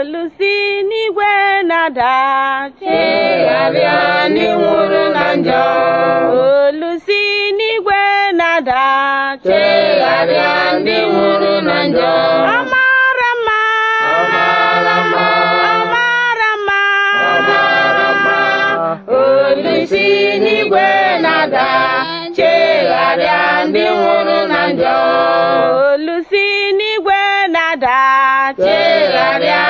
olusi n'igwe na-ada chigharịa ndị nwụrụ na njọ olu si n'igwe na-ada chigharịa ndị nwụrụ na njọ Olusi n'igwe na-ada chegharịa ndị nwụrụ na njọ olu si n'igwe na-ada chegharịa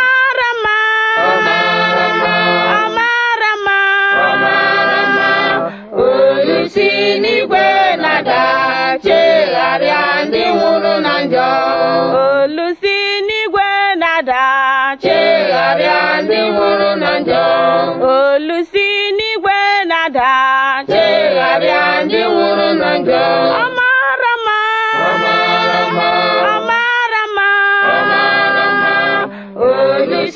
mmadụ agha chegharịa ndị nwụrụ na njọ olusi n'igwe na-ada chegharịa ndị nwụrụ na njọ olusi n'igwe na-ada chegharịa ndị nwụrụ na njọ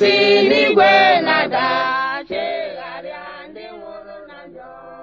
si n'igwe na-ada chegharịa ndị nwụrụ na njọ